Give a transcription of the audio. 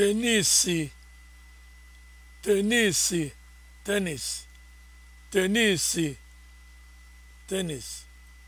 tenisi tenis tenisi